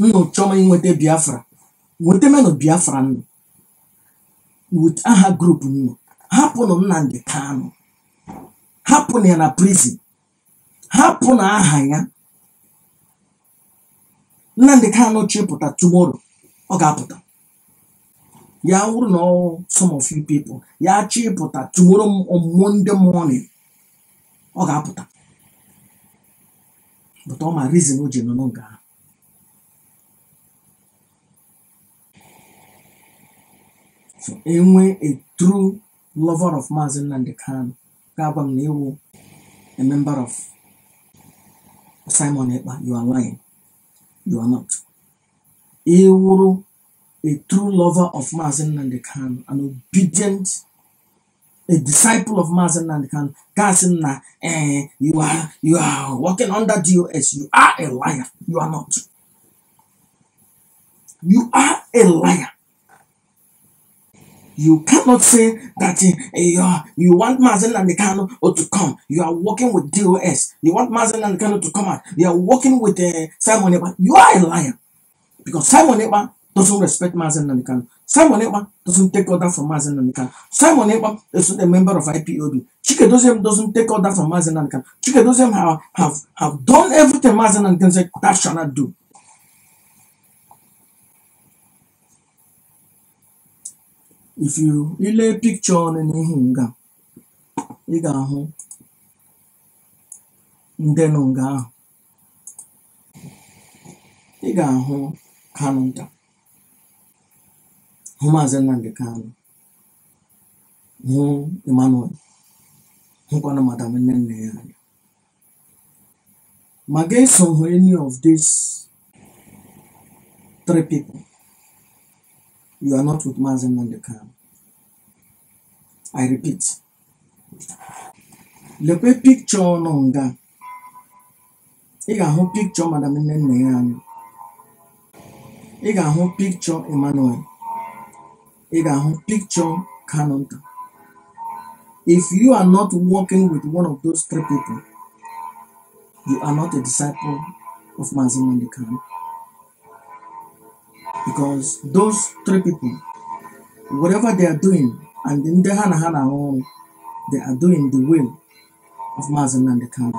nnu chọma nweta biafra nwetemenụ biafra nnu wit aha grupu nnu hapụnụ nnamdị kanụ hapụnụ ya na prizin hapụnụ aha ya nnamdị kanụ chịpụta tumoro ọ ga-apụta ya wụrụ na some of you people ya chịpụta tumoro ọmụmụ ndị morning ọ ga-apụta but ọ ma rizin o ji nụnụ nga ahụ enwe a true lover of Mazin Nandekan, Gabam Newu, a member of Simon Epa, you are lying. You are not. Ewuru, a true lover of Mazin Nandekan, an obedient, a disciple of Mazin Nandekan, Gasin na, eh, you are, you are working under DOS. You are a liar. You are not. You are a liar. You cannot say that uh, uh, you want Mazen Namikano or to come. You are working with DOS. You want Mazen Namikano to come out. You are working with uh, Simon Eba. You are a liar. Because Simon Eba doesn't respect Mazen Namikano. Simon Eba doesn't take order from Mazen Namikano. Simon Eba is a member of IPOB. Chike Dozem doesn't take order from Mazen Namikano. Chike Dozem have, have, have done everything Mazen Namikano said that shall not do. if you ilee picture ọnụ n'ihu ǹga ị gà-àhụ ndị nọ ǹga ahụ̀ ị gà-àhụ Kanụ ntà hụ Maazị Nnamdi Kanụ hụ Emmanuel hụkwanụ madam Nnenne ya anya ma ga-eso hụ any of these three people You are not with Mazen Mondekar. I repeat. Lekwe picture Nonga, nga. Ị picture Madam Nnenne ya anyị. picture Emmanuel. Ị ga picture Kanunta. If you are not working with one of those three people, you are not a disciple of Mazen Mondekar. because those three people, whatever they are doing, and in the Hana Hana, they are doing the will of Mazen and the Khan.